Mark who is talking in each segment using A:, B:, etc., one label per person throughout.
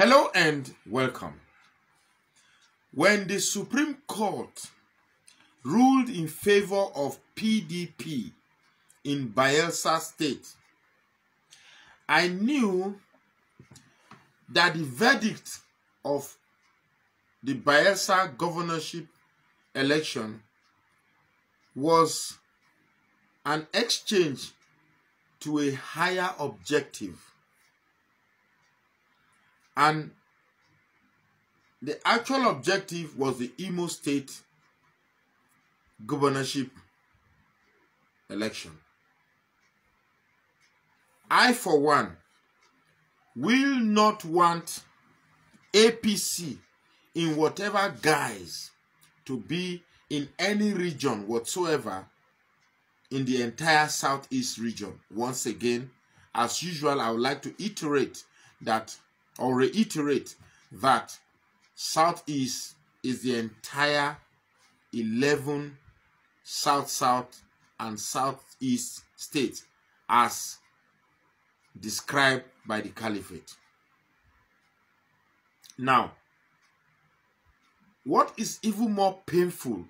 A: Hello and welcome. When the Supreme Court ruled in favor of PDP in Bielsa State, I knew that the verdict of the Bielsa governorship election was an exchange to a higher objective and the actual objective was the Imo State governorship election. I, for one, will not want APC in whatever guise to be in any region whatsoever in the entire southeast region. Once again, as usual, I would like to iterate that or reiterate that Southeast is the entire 11 South South and Southeast states as described by the Caliphate. Now, what is even more painful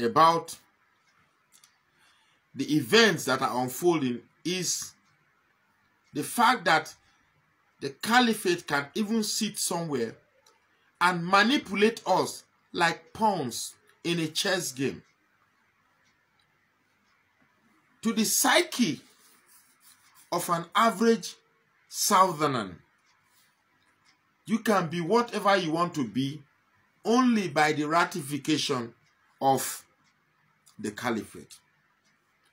A: about the events that are unfolding is the fact that the caliphate can even sit somewhere and manipulate us like pawns in a chess game. To the psyche of an average southerner, you can be whatever you want to be only by the ratification of the caliphate.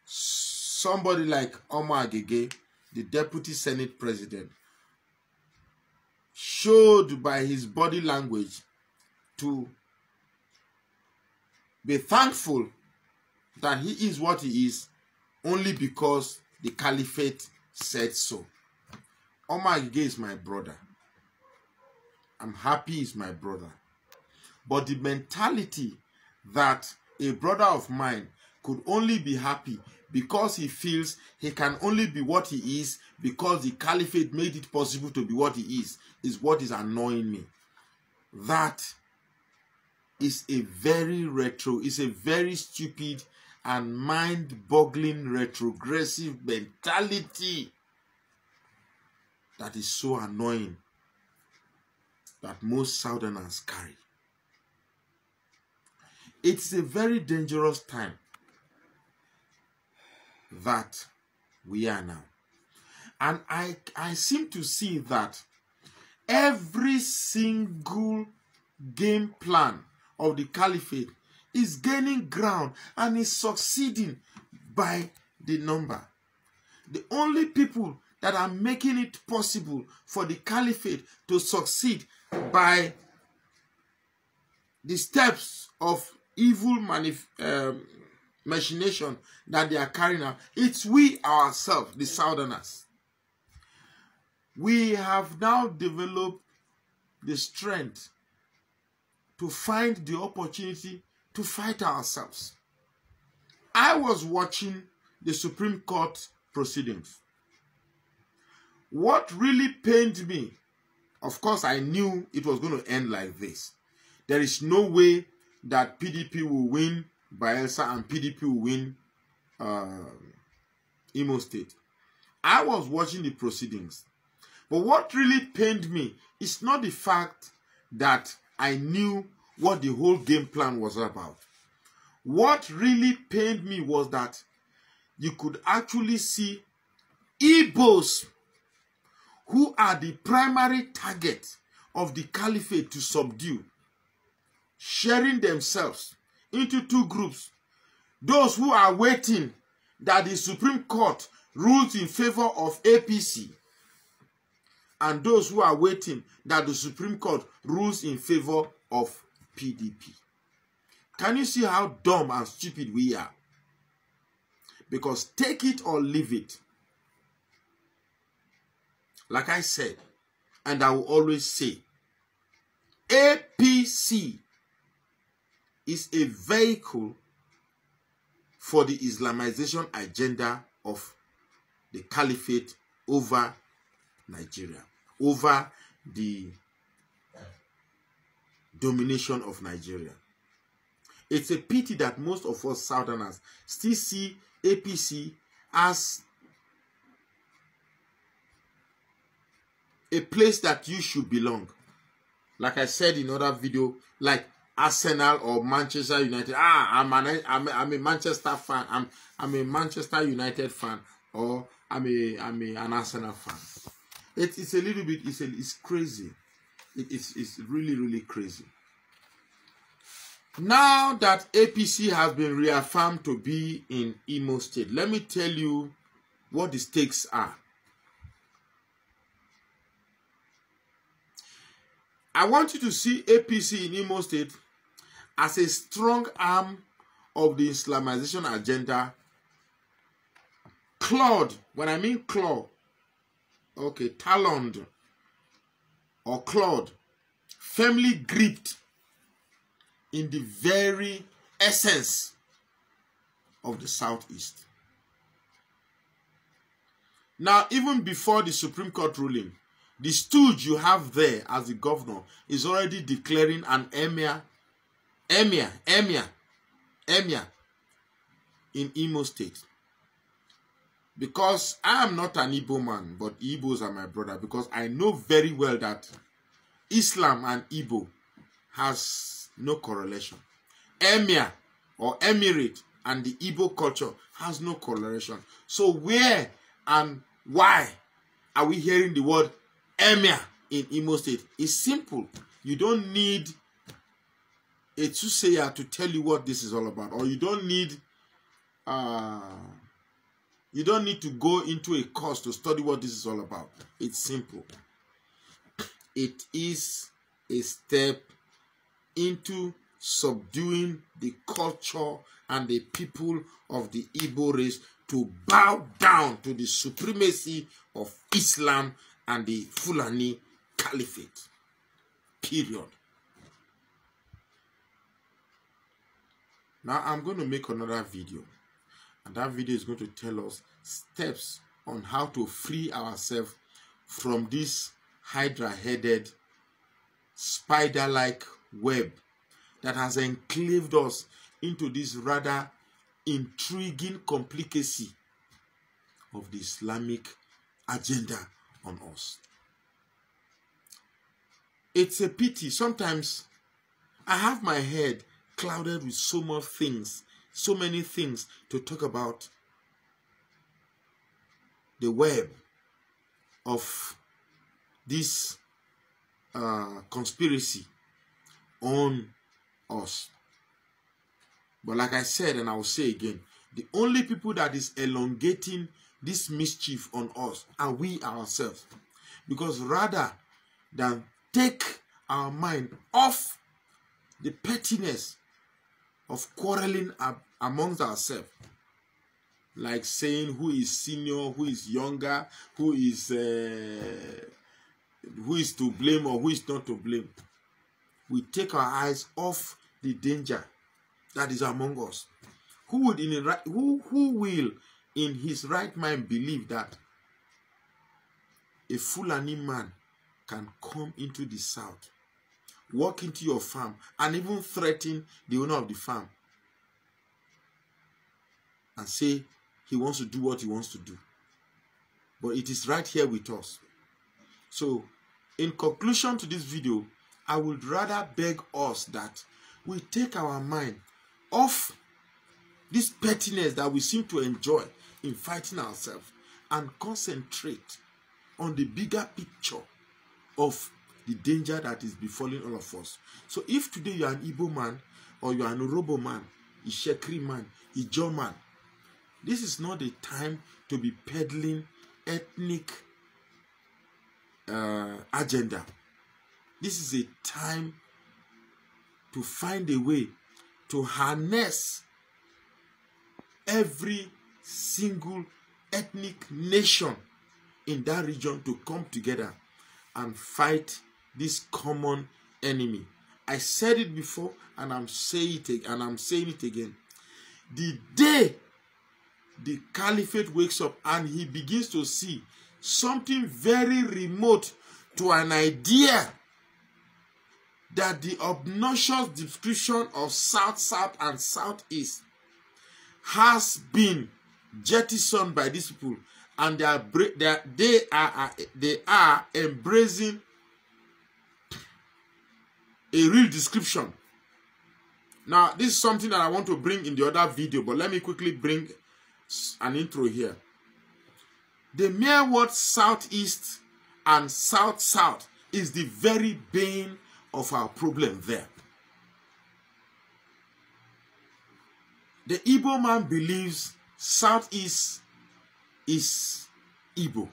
A: Somebody like Omar Agege, the deputy senate president, showed by his body language to be thankful that he is what he is only because the caliphate said so. Omar Gige is my brother. I'm happy is my brother. But the mentality that a brother of mine could only be happy because he feels he can only be what he is because the caliphate made it possible to be what he is, is what is annoying me. That is a very retro, is a very stupid and mind-boggling retrogressive mentality that is so annoying that most Southerners carry. It's a very dangerous time that we are now. And I, I seem to see that every single game plan of the caliphate is gaining ground and is succeeding by the number. The only people that are making it possible for the caliphate to succeed by the steps of evil manif um, machination that they are carrying out. It's we ourselves, the Southerners. We have now developed the strength to find the opportunity to fight ourselves. I was watching the Supreme Court proceedings. What really pained me, of course, I knew it was going to end like this. There is no way that PDP will win Bielsa and PDP will win uh, Imo State. I was watching the proceedings. But what really pained me is not the fact that I knew what the whole game plan was about. What really pained me was that you could actually see Igbos who are the primary target of the caliphate to subdue, sharing themselves into two groups. Those who are waiting that the Supreme Court rules in favor of APC and those who are waiting that the Supreme Court rules in favor of PDP. Can you see how dumb and stupid we are? Because take it or leave it. Like I said, and I will always say, APC is a vehicle for the Islamization agenda of the caliphate over Nigeria, over the domination of Nigeria. It's a pity that most of us Southerners still see APC as a place that you should belong. Like I said in other video, like Arsenal or Manchester United. Ah, I'm, an, I'm, a, I'm a Manchester fan. I'm, I'm a Manchester United fan or I'm a, I'm a, an Arsenal fan. It, it's a little bit, it's, a, it's crazy. It, it's, it's really, really crazy. Now that APC has been reaffirmed to be in Imo State, let me tell you what the stakes are. I want you to see APC in Imo State as a strong arm of the Islamization agenda, clawed, when I mean claw, okay, taloned or clawed, firmly gripped in the very essence of the Southeast. Now, even before the Supreme Court ruling, the stooge you have there as the governor is already declaring an emir Emia, Emia, Emia in Imo State. Because I am not an Igbo man, but Igbos are my brother. Because I know very well that Islam and Igbo has no correlation. Emir or Emirate and the Igbo culture has no correlation. So where and why are we hearing the word Emir in Imo State? It's simple. You don't need a soothsayer to tell you what this is all about or you don't need uh, you don't need to go into a course to study what this is all about it's simple it is a step into subduing the culture and the people of the Igbo race to bow down to the supremacy of Islam and the Fulani Caliphate. Period. Now I'm going to make another video and that video is going to tell us steps on how to free ourselves from this hydra-headed spider-like web that has enclaved us into this rather intriguing complicacy of the Islamic agenda on us. It's a pity. Sometimes I have my head clouded with so much things, so many things to talk about the web of this uh, conspiracy on us. But like I said, and I will say again, the only people that is elongating this mischief on us are we ourselves. Because rather than take our mind off the pettiness of quarreling amongst ourselves like saying who is senior who is younger who is uh, who is to blame or who is not to blame we take our eyes off the danger that is among us who would in right, who who will in his right mind believe that a fulani man can come into the south walk into your farm and even threaten the owner of the farm and say he wants to do what he wants to do. But it is right here with us. So, in conclusion to this video, I would rather beg us that we take our mind off this pettiness that we seem to enjoy in fighting ourselves and concentrate on the bigger picture of the danger that is befalling all of us. So if today you are an Igbo man or you are an Orobo man, a Shekri man, a Jaw man, this is not the time to be peddling ethnic uh, agenda. This is a time to find a way to harness every single ethnic nation in that region to come together and fight this common enemy. I said it before and I'm saying it and I'm saying it again. The day the caliphate wakes up and he begins to see something very remote to an idea that the obnoxious description of South, South, and Southeast has been jettisoned by these people, and they are they are, they are, they are embracing a real description. Now, this is something that I want to bring in the other video, but let me quickly bring an intro here. The mere word southeast and south-south is the very bane of our problem there. The Igbo man believes southeast is Igbo.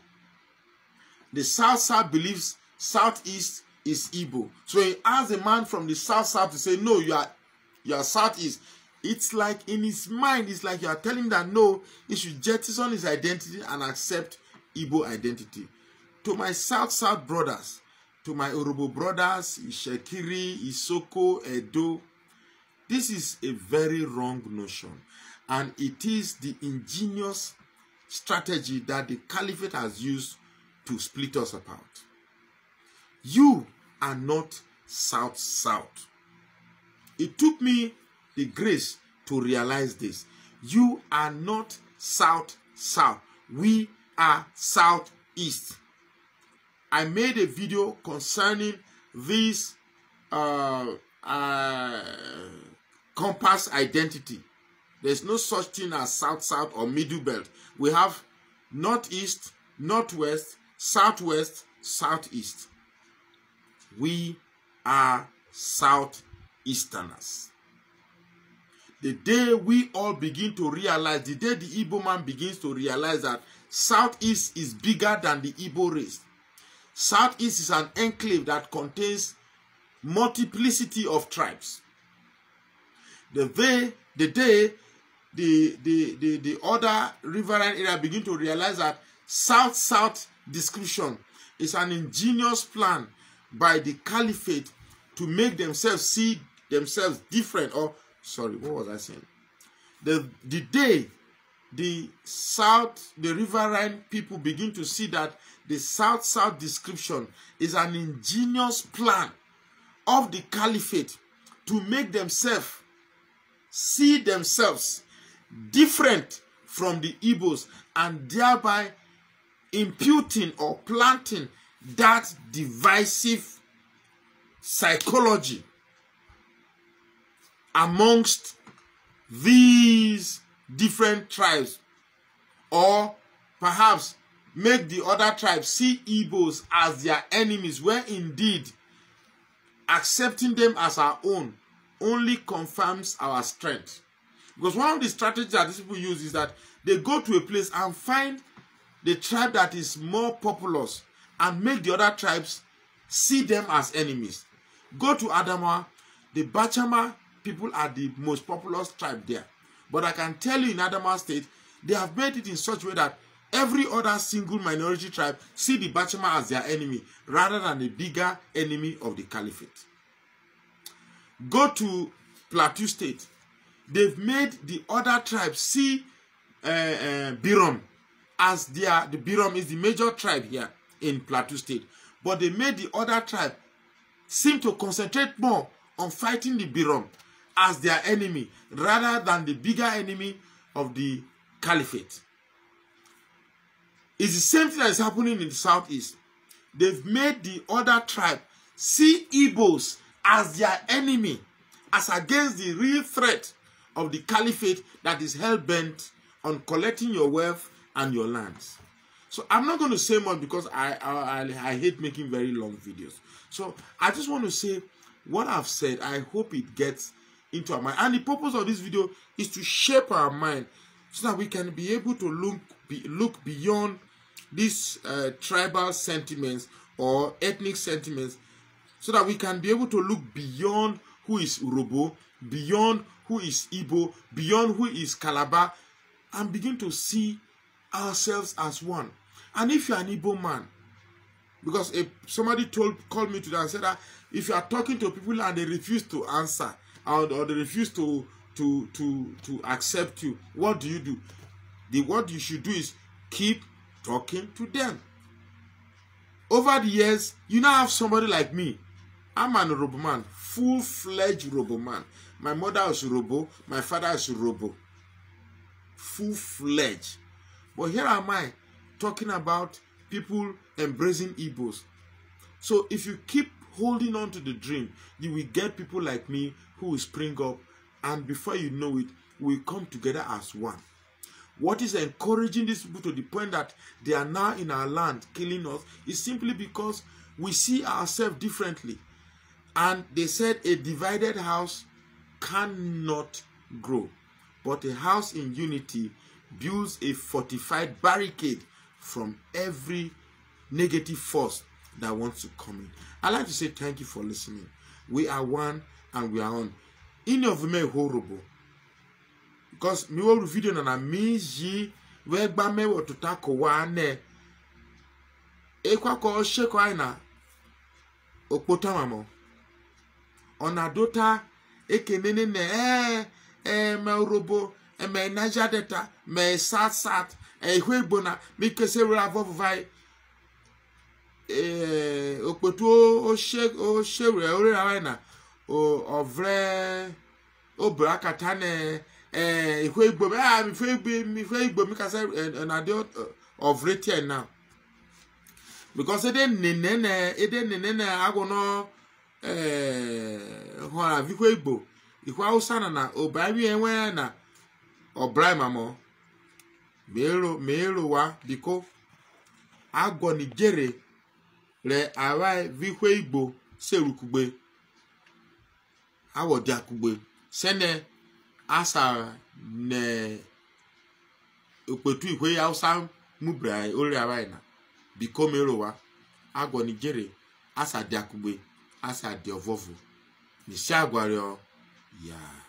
A: The south-south believes southeast is Igbo. So he asked a man from the south south to say, no, you are, you are southeast. It's like in his mind, it's like you are telling that no, he should jettison his identity and accept Igbo identity. To my south south brothers, to my Urubu brothers, Ishekiri, Isoko, Edo, this is a very wrong notion. And it is the ingenious strategy that the caliphate has used to split us apart. You and not south south. It took me the grace to realize this. You are not south south. We are southeast. I made a video concerning this uh, uh, compass identity. There's no such thing as south south or middle belt. We have northeast, northwest, southwest, southeast. We are Southeasterners. The day we all begin to realize, the day the Igbo man begins to realize that Southeast is bigger than the Igbo race. Southeast is an enclave that contains multiplicity of tribes. The day, the day the, the, the, the other riverine area begin to realize that South-South description is an ingenious plan by the caliphate to make themselves see themselves different or sorry what was i saying the the day the south the riverine people begin to see that the south south description is an ingenious plan of the caliphate to make themselves see themselves different from the Igbos and thereby imputing or planting that divisive psychology amongst these different tribes or perhaps make the other tribes see Igbos as their enemies when indeed accepting them as our own only confirms our strength. Because one of the strategies that these people use is that they go to a place and find the tribe that is more populous and make the other tribes see them as enemies. Go to Adamawa. The Bachama people are the most populous tribe there. But I can tell you in Adamawa state, they have made it in such a way that every other single minority tribe see the Bachama as their enemy rather than the bigger enemy of the caliphate. Go to Plateau state. They've made the other tribes see uh, uh, Birom as their, the Birom is the major tribe here in Plateau State. But they made the other tribe seem to concentrate more on fighting the Birom as their enemy rather than the bigger enemy of the caliphate. It's the same thing that is happening in the southeast. They've made the other tribe see Igbos as their enemy as against the real threat of the caliphate that is hell-bent on collecting your wealth and your lands. So I'm not going to say much because I, I, I hate making very long videos. So I just want to say what I've said. I hope it gets into our mind. And the purpose of this video is to shape our mind so that we can be able to look, be, look beyond these uh, tribal sentiments or ethnic sentiments so that we can be able to look beyond who is Urobo, beyond who is Ibo, beyond who is Calabar, and begin to see ourselves as one. And if you're an Igbo man, because if somebody told called me today and said that if you are talking to people and they refuse to answer or, or they refuse to to to to accept you, what do you do? The what you should do is keep talking to them. Over the years, you now have somebody like me. I'm an Robo man, full-fledged Robo man. My mother is Robo, my father is Robo. Full-fledged. But here am I talking about people embracing Igbos. So if you keep holding on to the dream, you will get people like me who will spring up, and before you know it, we come together as one. What is encouraging these people to the point that they are now in our land killing us is simply because we see ourselves differently. And they said a divided house cannot grow, but a house in unity builds a fortified barricade from every negative force that wants to come in. I'd like to say thank you for listening. We are one and we are on. Any of me horrible. Because mi wo video na na mi ji we gba mewo to tako wa ne. E kwa ko se na. aina. Opo tamamo. Ona dota ekenene ne eh eh me robo. eme Niger Delta mee South South e ihu igbo na mikese were avọvụvanyị ee okpoto oshewere orewanyị na ovre obere akata na ee ihu igbo ah, ihu mi mikasa e, e, na dị ovre tien na because ede nene na ede nene na agwụ nọ ihu igbo ihu hausa na na obarie enwe ya na ọbraimamo ma ịrụwa biko agwọnijere re arai vikwe igbo serukugbe awọdiakugbe sene asara ne okpetu ikwe hausa mubra ori arai na biko ma ịrụwa agwọnijere asadiakugbe asadiovọvụ nisiagwario ya yeah.